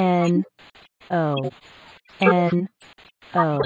N O N O